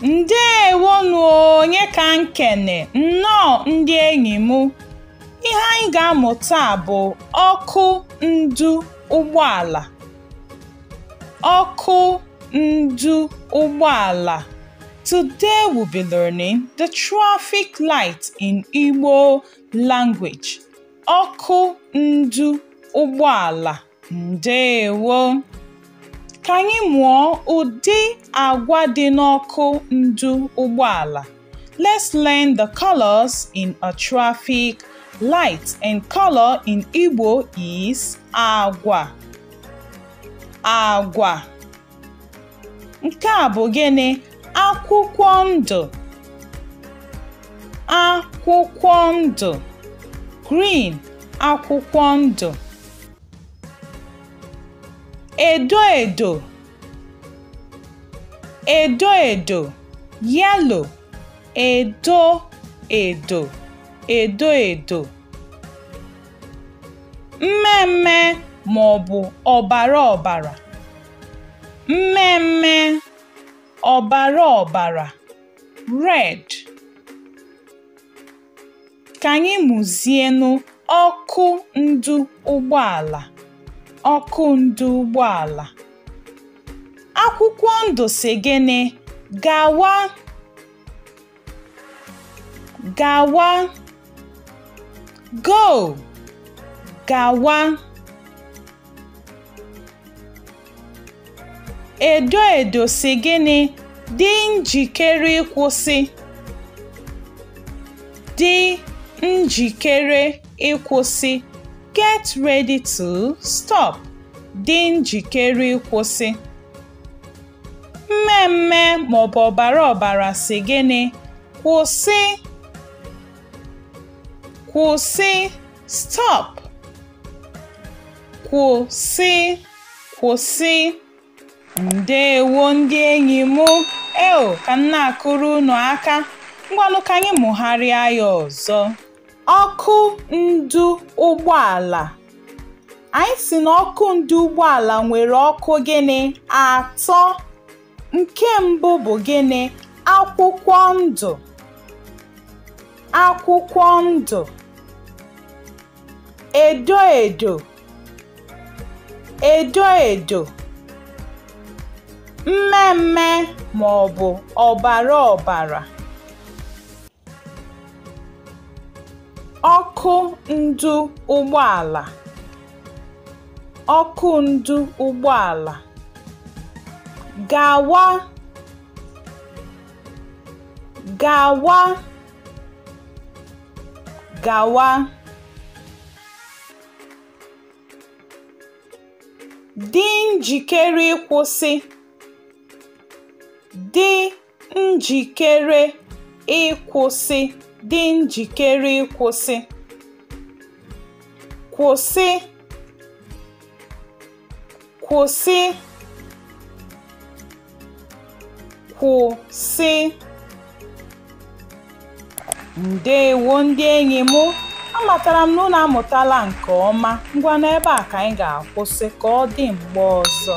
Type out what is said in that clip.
Ndị onye ka nkene nnọọ ndị enyi m ihe anyị ga amụta bụ ọkụ ndu ụgbọala ọkụ ndụ ụgbọala Today we'll be learning the traffic light in Igbo language. Ọkụ ndu ụgbọala ndewo. Ka mụọ ụdị agwa dị n'ọkụ ndu ụgbọala. Let's learn the colors in a traffic light and color in Igbo is agwa. Agwa. Nke a bụ gịnị? akwụkwọ ndụ akwụkwọ ndụ green akwụkwọ ndụ edo edo edo edo yellow edo edo edo edo mmemme ma ọ bụ ọbara ọbara mmemme ọbara ọbara (red), ka anyị mụzienụ ọkụ ndụ ụgbọala, ọkụ ndụ ụgbọala, akwụkwọ ndụ gịnị gawa, gawa, GO! GAWA! edo edo si gịnị dị njikere ịkwụsị dị njikere ịkwụsị get ready to stop dị njikere ịkwụsị mmemme maọbụ ọbara ọbara si gịnị kwụsị kwụsị stop kwụsị kwụsị Ndeewo ndị enyi m. eo ka m na-akụrụ unu aka. Ngwanụ ka anyị mụgharịa ya ọzọ. Ọkụ ndụ ụgbọala. Anyị si na ọkụ ndụ ụgbọala nwere ọkụ gịnị? Atọ. Nke mbụ bụ gịnị? Akwụkwọ ndụ. Akwụkwọ ndụ. Edo edo. Edo edo. mmemme bụ ọbara ọbara (ọkụ ndụ ụgbọala), (ọkụ ndu ụgbọala), gawa, gawa, gawa, dị njikere ịkwụsị. Dị njikere ịkwụsị Dị njikere ịkwụsị. Kwụsị. Kwụsị. Kwụsị. Ndeewo ndị enyi m. Amatara m na unu amụtala nke ọma. ngwa n'ebe a ka anyị ga-akwụsị ka ọ dị mgbe ọzọ.